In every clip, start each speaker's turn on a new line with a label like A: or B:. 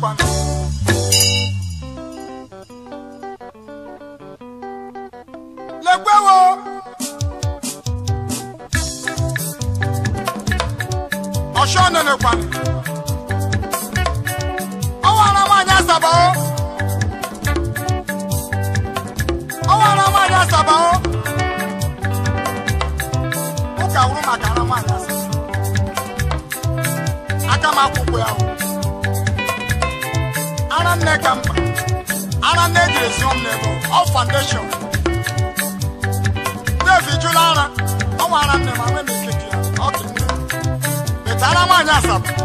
A: kwa. lẹgbẹ́ wo. ọ̀ṣọ́ nínú kwa. ọwọ́ ara máa ní àṣàbà o. ọwọ́ ara máa ní àṣàbà o. ó kà wúrú ara máa ní aka m akwụkwọ ya o nwanne nne ka mma ara nne eji esi nwanne foundation Dave jụrụ ara ọ nwa ara nne ma nwee m ikeke ya ọ dị nne metara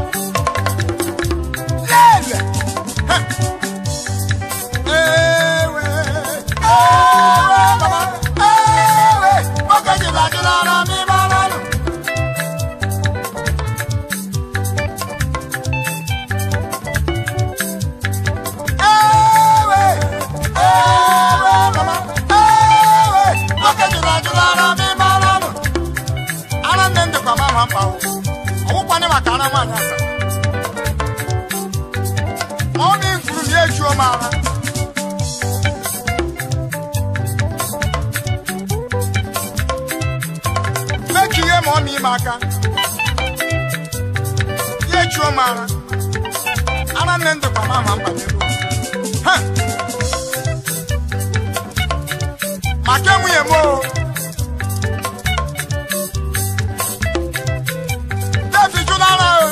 A: aka ya echuo m ara ara nne ndụkwa m ama mba n'elu maka enwunye m o devi jụrụ ara o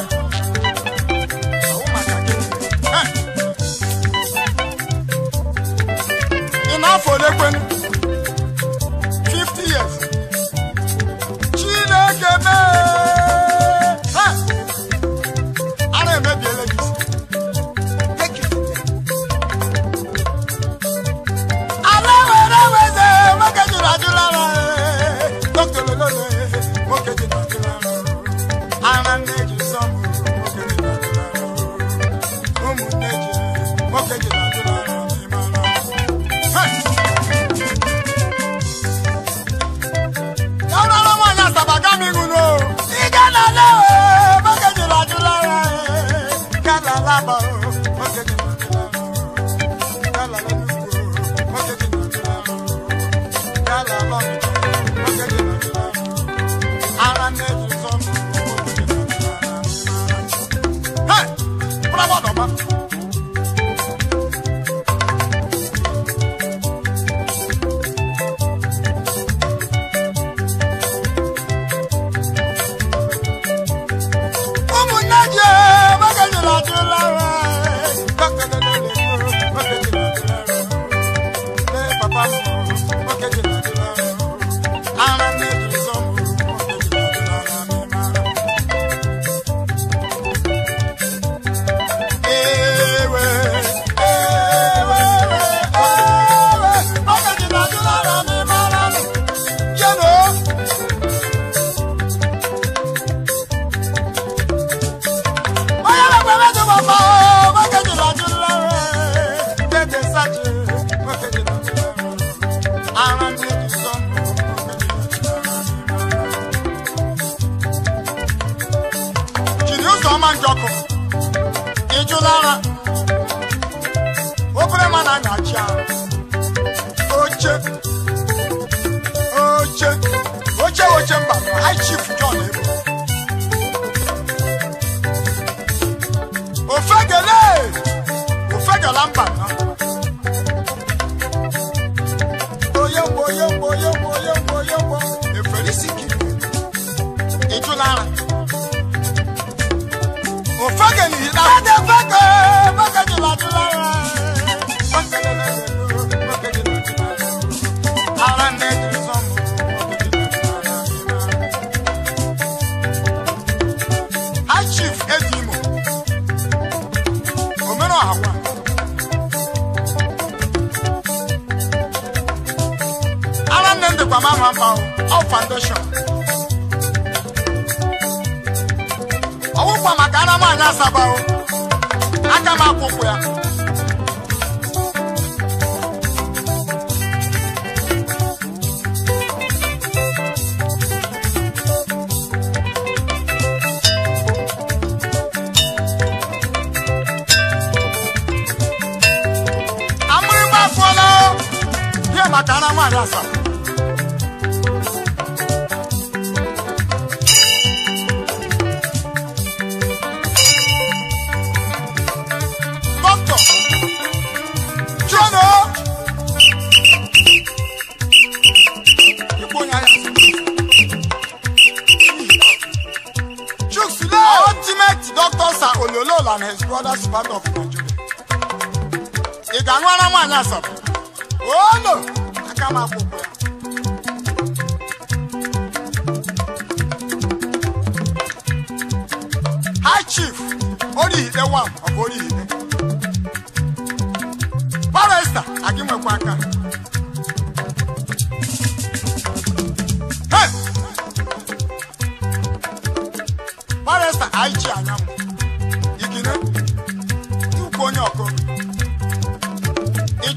A: ị na-afọ àwa.
B: ara nne m dịkwa m ama mma ọ foundation
A: ọwụkwa maka ara m anya asaba aka m akwụkwụ ya Arasa.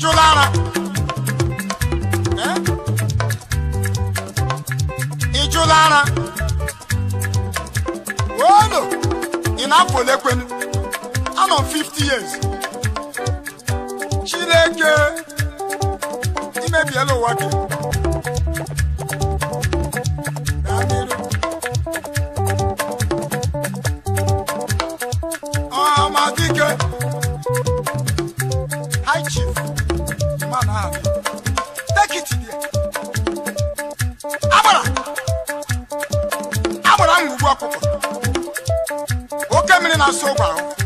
A: tijú lára. Ijú lára. no. in Afolekwenu, I'm on fifty years. Chileke, imebielo e wake. pass around.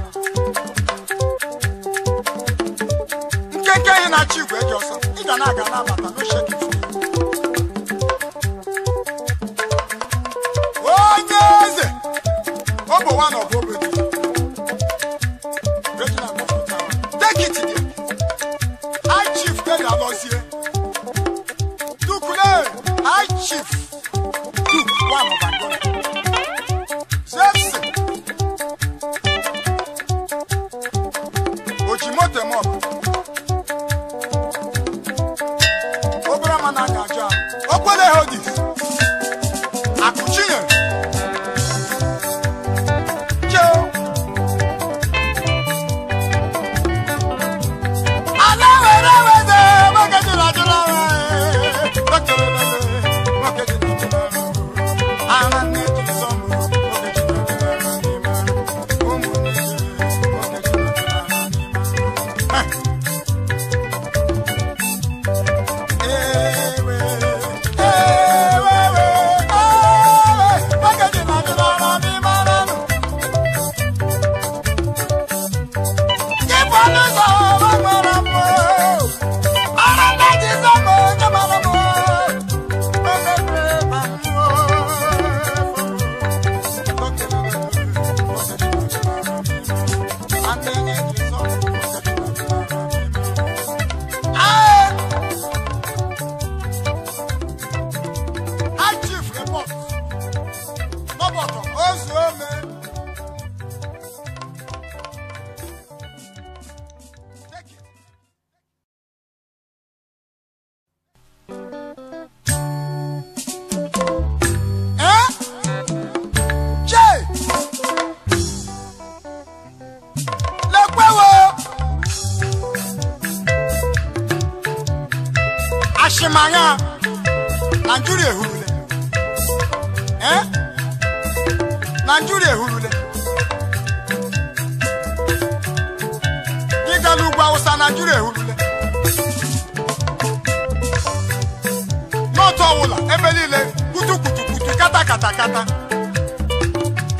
A: ebe niile kutukutukutu kata kata kata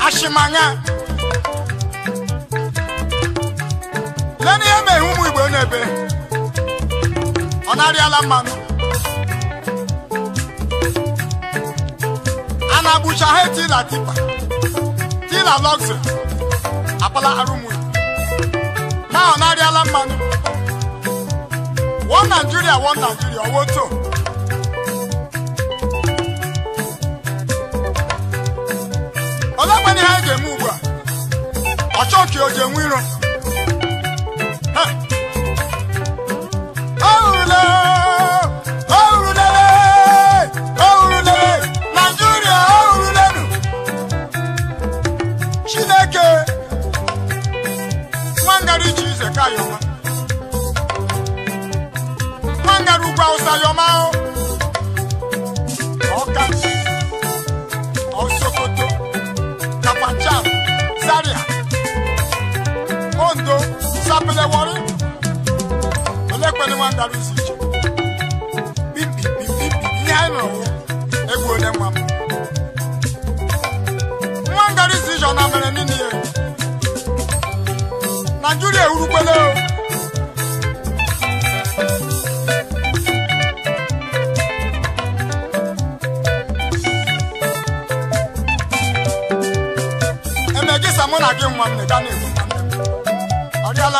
A: ashimanya lee n'ihe mere ụmụ igbo n'ebe ọ na-arịala mmanụ a na-agbụcha ha tila tipa tila lọgziri akpala arụmụ na ọ na-arịala mmanụ one Nigeria one Nigeria owoto ọlọgba ihe eji eme ugbu a ọchọọchị o ji enwe iro ni wọn darí sí ìṣe bíbí bíbí ní àìmọ egwu onye nwa m nwa ngari si ìṣe ọna mere nínú ya emegisa mụ na gị nwa m na ịga na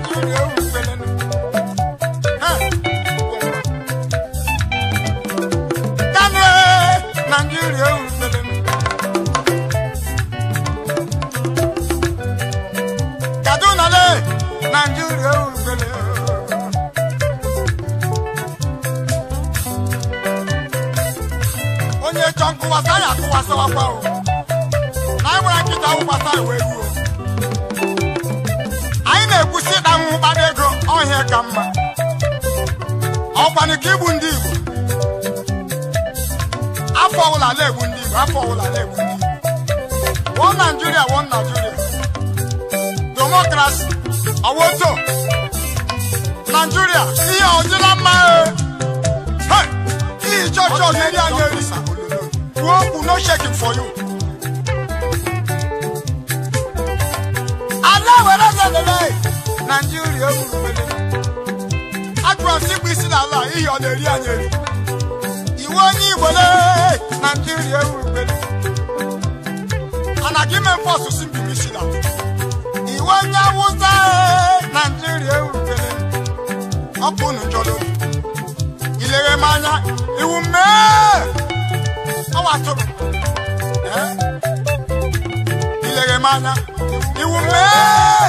A: onye chọ na anyị nwere nkịta anyị na-ekwusi ịda nwụ mkpara ego ọhịa ka mma ọkwanụ ka igbu ndị Igbo afọ na ndị Igbo afọ Igbo wọ wọ àwọn tó nàìjíríà iye ọ̀jẹ̀ la máa ẹ̀ kí ìjọ́jọ́ ní ilé ayé rí gúróòpù no shaking for you. aláwẹ̀ lọ́sẹ̀ lẹ́lẹ́ nàìjíríà wùrù wẹ̀lẹ̀ agbọ̀n síbi sílẹ̀ àlà iye ọ̀lẹ̀ rí ayé rí Nigeria. ní ìwọlé nàìjíríà wùrù wẹ̀lẹ̀ anagimẹ̀ fọ́ọ̀sì síbi mi sílẹ̀ àlà iwe onye awụsa naijiria erubere ọkụ nujolo ilere m anya iwu mee ọwa tụrụ ilere m anya iwu mee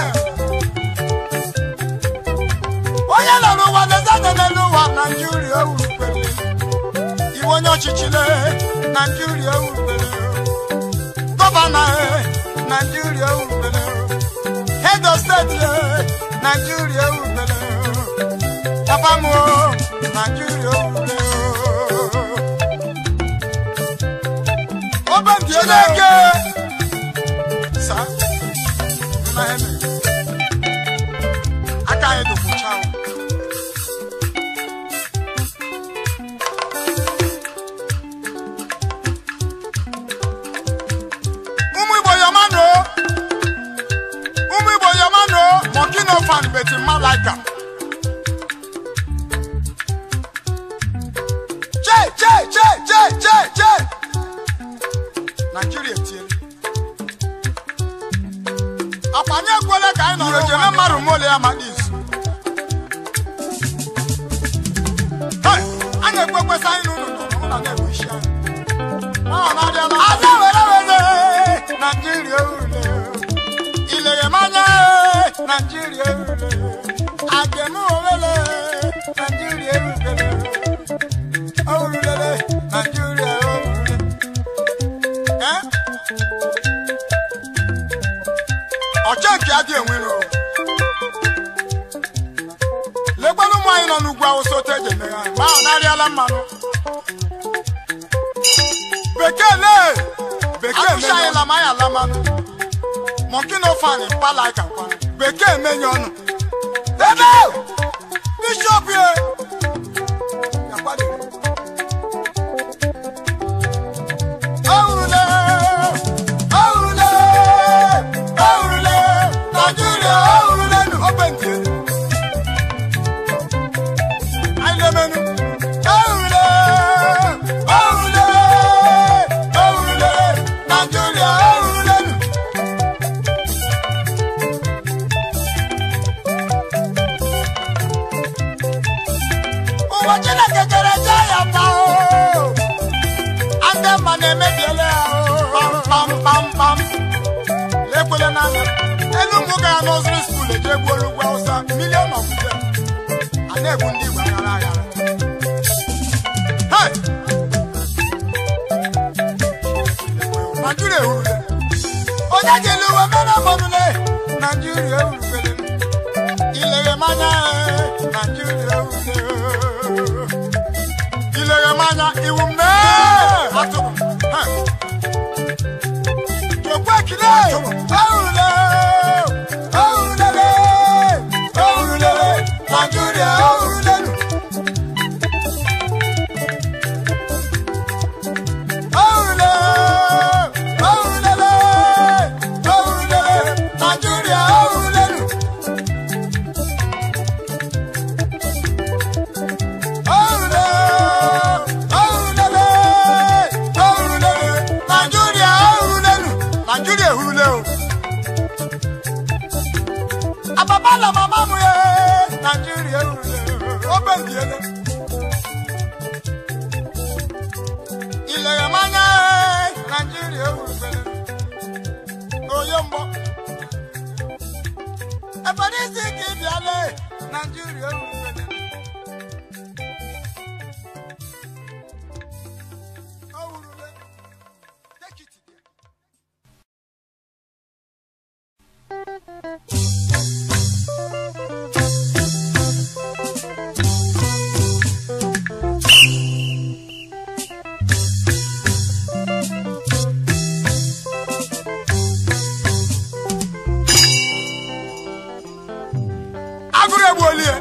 A: onye nọ n'ụwa na-ezede n'elu ụwa naijiria erubere iwe onye ọchịchị naijiria erubere gọvanọ e, naijiria erubere Edo steeti Naijiria ewubere Chapamoo Naijiria ewubere Obe ndị Nàìjíríà òrùlé o. Ìlẹ̀yẹ̀ máa yẹ Nàìjíríà òrùlé o. Àjẹmú òwélé Nàìjíríà òrùlé o. Òrùlé Nàìjíríà òrùlé. Ọ̀chẹ́ nke adị enwere o. Lekwanụ ụmụ anyị nọ n'ugwu awụsa otu eji eme ha, ma ọ narịala mmanụ. Bekee lee! arụcha anyị lama ya lama mọnkino fani pala ka kwana bekee menye ọnụ ebe bishọp ye ọhụrụ na egwu olugbo hausa milion of them a na-egwu ndị igbo aghara aghara naijiria ewurule onye jele uwe mara mmanụle naijiria ewurubere ileghe manya naijiria ewurule ileghe manya iwu mee atụrụ jokwe ekile ewurule agụrụ elie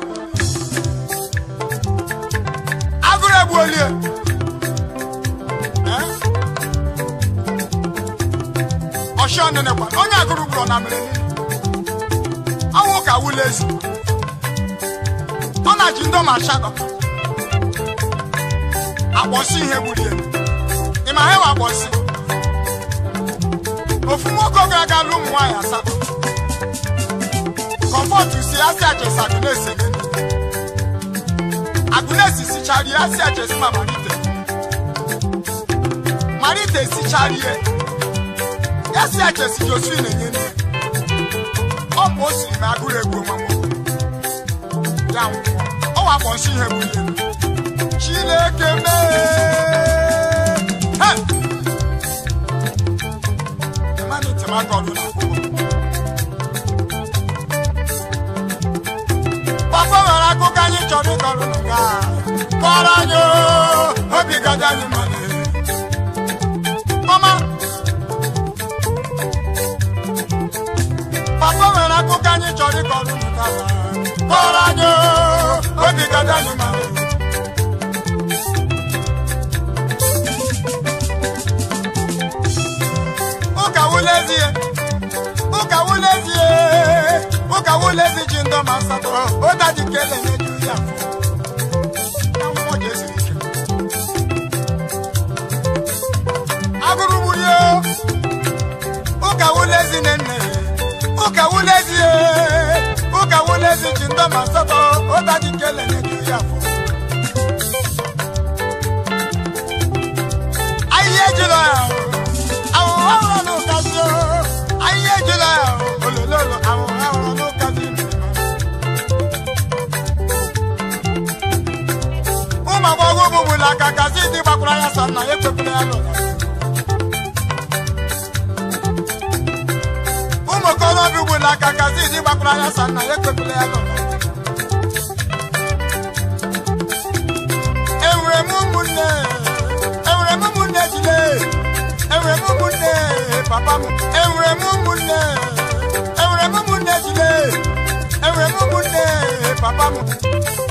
A: agụrụ egbuolie ọshanenekwa onye agụrụ gburu na mmiri ọnwụ ka ụlọ ezi ọ na-ji ndị ọma asatọ akpọsị ihe gburie ị ma ha enwe akpọsị ofu nwoke oge aga alụ ụmụ nwaanyị asatọ comot eh? oh, you see asi aje si agunesi mi agunesi sichari asi aje si ma marite marite sichari ye yasi aje si josephine nye ni ọ bụ o siri na agụrụ egwu ọmụmụ ya ọ wakpọ nsị ihe bụ ihe chineke mee. Hey! Emmanuel Temako ọdụla. ego nwere akụkọ anyị chọrọ ịkọrọ nke a kọrọ anyị obi gaji anyị mmadụ mama papa nwere akụkọ anyị chọrọ ịkọrọ nke a kọrọ anyị obi gaji anyị mmadụ ụka wụlezie ụka wụlezie ka wole si ji ndọ ma satọrọ o da ji kele nye ju ya fọ akwụkwọ jesu ike agụrụ bụ ya ụka wole si ne nne ụka wole si ye ụka wole si ji ndọ ma satọrọ o da ji kele nye ju ya fọ ayé jùlọ àwọn ọlọ́run kà sí ọ ayé jùlọ olólùlọ àwọn. ụmụ aka gazi dị na ekwepụla ya ụmụ okorobịa ya sa na ya enwere m ụmụnne enwere m ụmụnne jide enwere m ụmụnne papa m enwere m m m papa m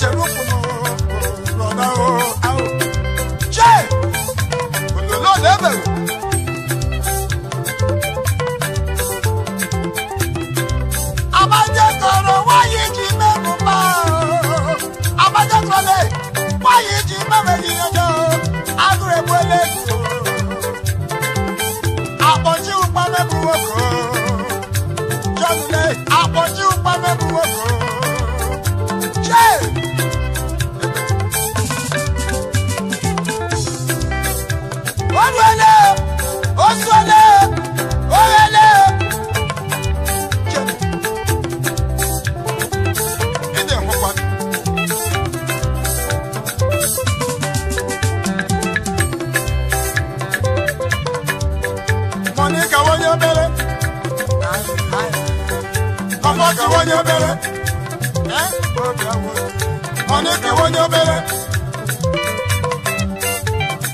A: chere ụkwụ ka onye obere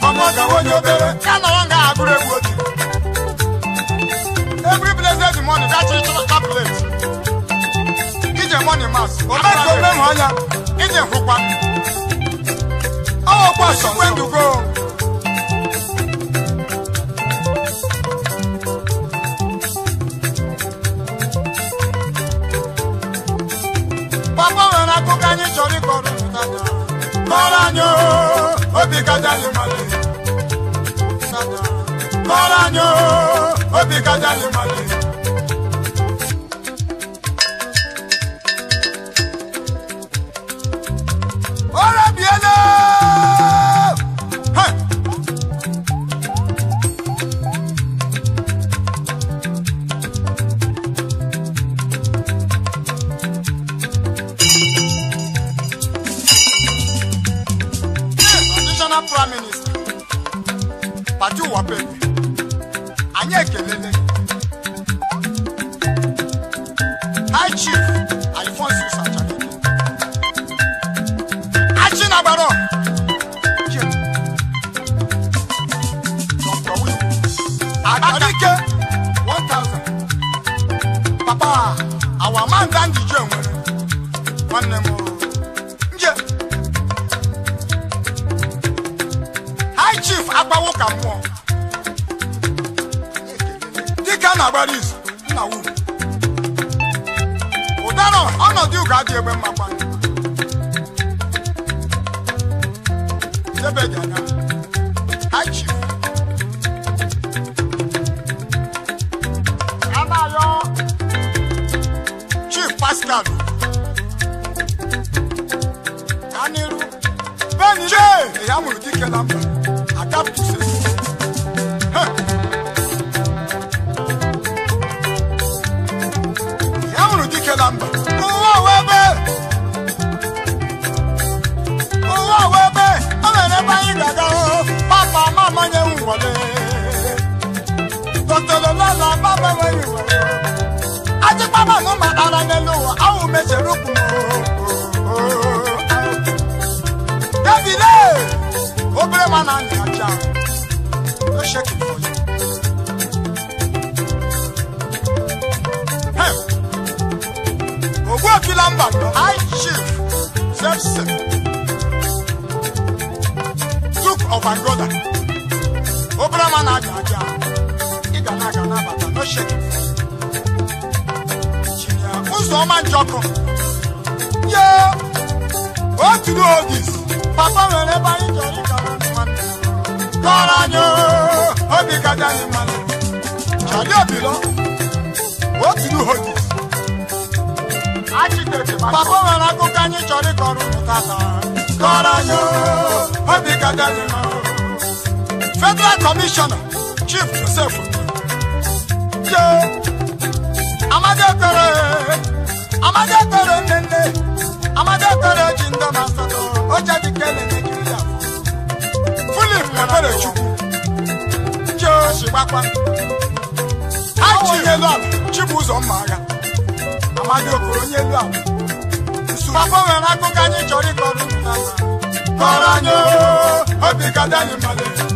A: ọmụ I onye obere ya nọrọ nga agụrụ egwu otu every blessed morning that you chọrọ tablet ije money mass ọmụ ka ome hụ ya ije hụkwa ọkwa sọkwendugo papa nwere akụkọ anyị chọrọ ịkọrọ maranya obi gadali mali maranya obi gadali mali yɛbɛgyana akyi ana yɔ chief pascal aniru bɛni de eya mulu dikɛ lampa to sesi. wọlé. Tòtòlò lọ́la bá bẹ̀rẹ̀ ìwẹ̀. Ajípámà ló ma ara ní lò wọ́n, àwọn òun méṣe rúkú mọ́. Débìlé, obìnrin máa nà ní àjà, ó ṣe kìí fọ́ Ògùn òfin lámbà lọ, high of my obere ọma na-aja aja ị ga na-aga n'abata n'oche ụzọ ọma njọkụ ye oturu ogis papa nwere ebe anyị chọrọ ịgara nwanne kọrọ anyị obi gaja anyị mmanụ chali obilo oturu ogis papa nwere akụkọ anyị chọrọ ịkọrọ ụmụ tata kọrọ anyị obi gaja anyị federal commissioner chief joseph yo amadekere amadekere nene amadekere jindo masato ó jẹ́ bí kẹ́lẹ́ nàìjíríà philip ebere chukwu yo ṣìgbàpá aji onyelu ala chibuzọ mma agha amadekere onyelu ala papa nwere akụkọ anyị chọrọ ịkọrọ unu n'ala kọrọ anyị obi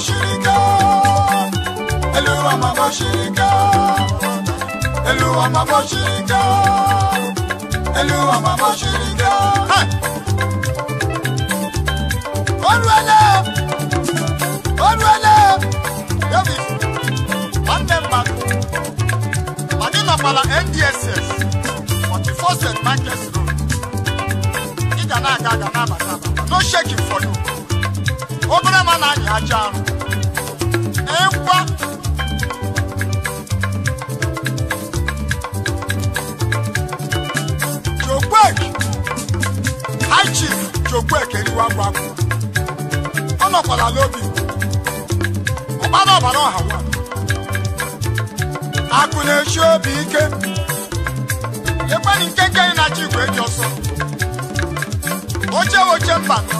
A: bashirika Eluwa ma bashirika Eluwa ma bashirika Eluwa ma bashirika Olwele Olwele David Mandemba Manila Pala NDSS 44th Market Road Ida na aga aga na abata No shaking for you obere ma na-anya aja arụ ịkwa jokwek high chief jokwek eriwa agwa agwa ọ nọkwara n'obi ọgbara ọbara ọha nwa akụ na-echi obi ike ekweri nke nke na chi igwe eji ọsọ oche oche mba nọ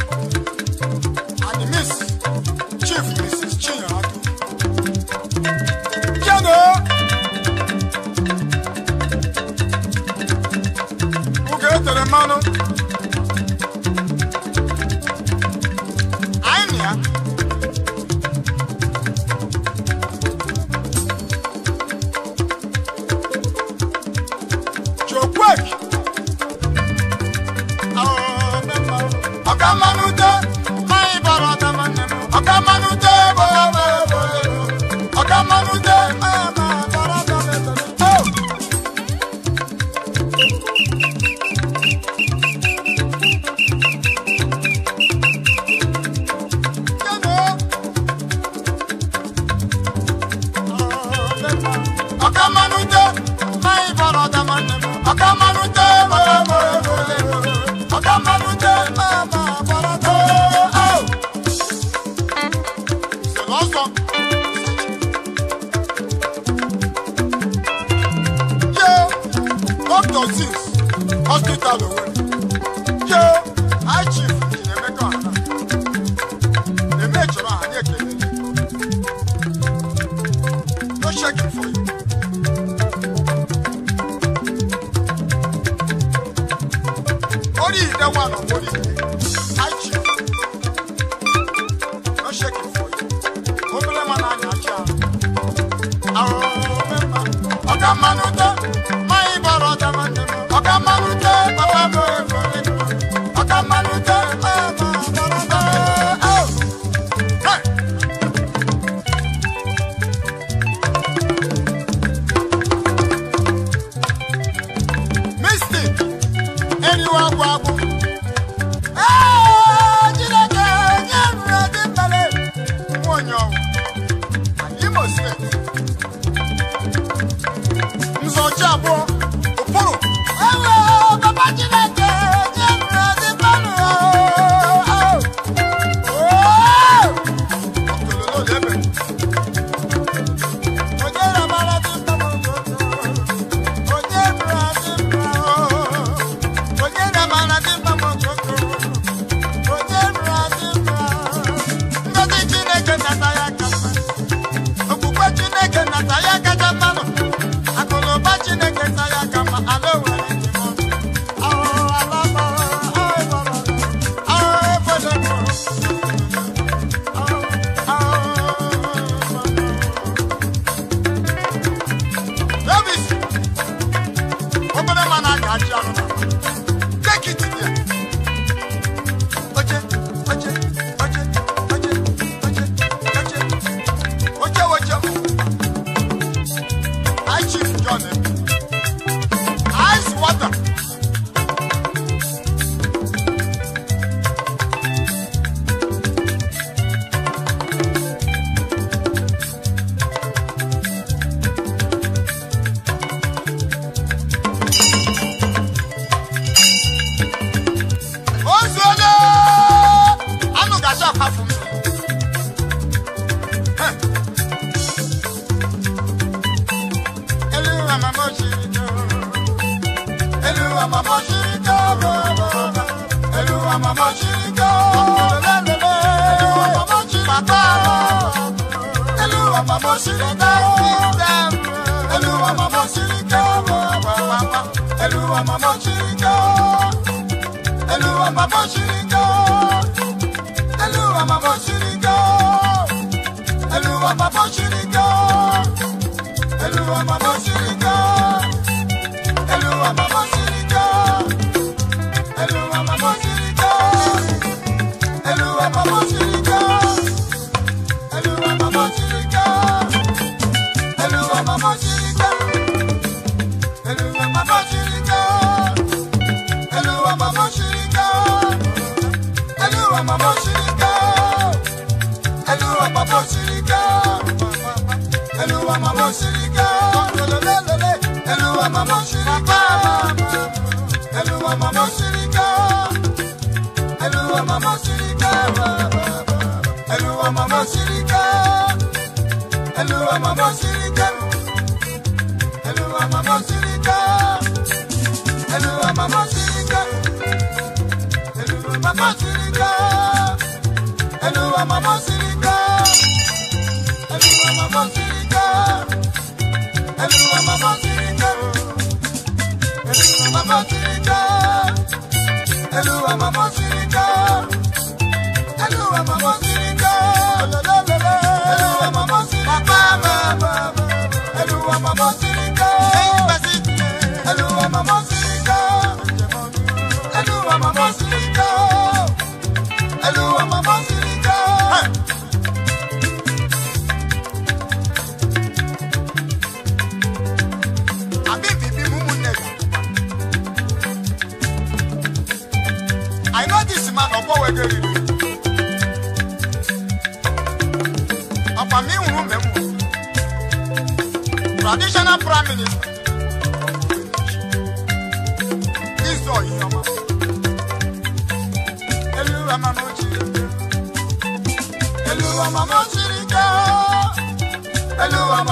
A: baba.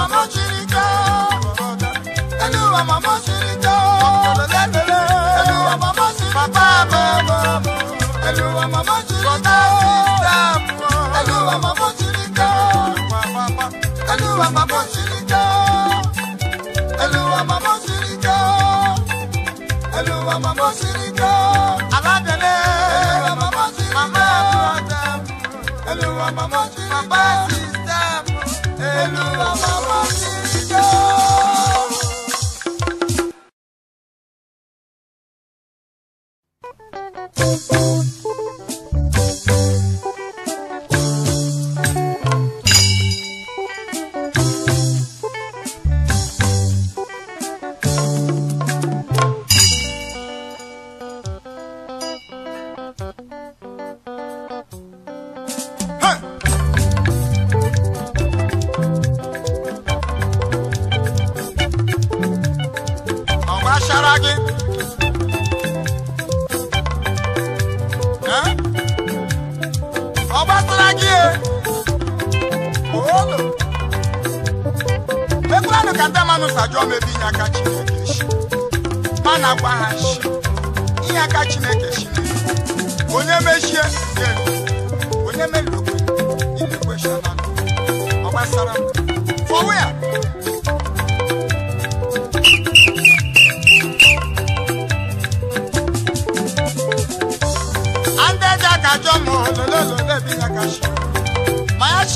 A: mama mo mama ka Eluwa mama mama ka Eluwa mama chiri papa mama Eluwa mama mama ka Eluwa mama mama ka Eluwa mama mama ka Eluwa mama mama ka Eluwa mama chiri mama Aladele Eluwa mama mama ka Eluwa mama mama ka Eluwa mama mama ka Eluwa mama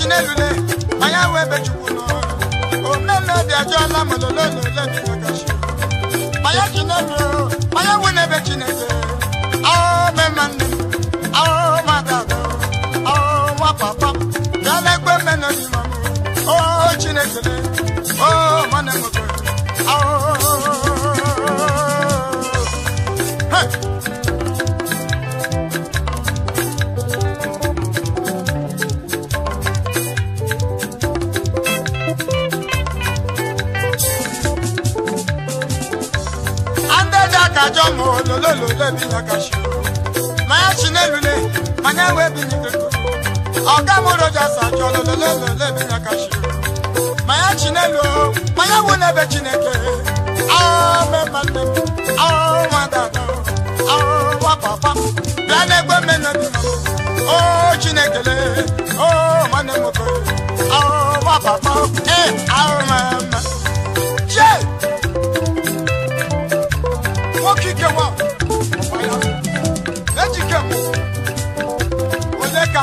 A: chinelule anya wee bechukwu n'ọrụ na maka atọ ahụhụ nwa na o chinekele o ajọ ma ololololo ebinya kashi manya chinelule manya wee binyigoro ọga m rojas ajọ ololololo ebinya kashi manya chinelu manya wụ n'ebe chineke aụmemmanne m aụnwadada aụwa papa bịa n'egbe mmenadi o chinekele o nwanne m oke papa e,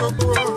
A: Oh.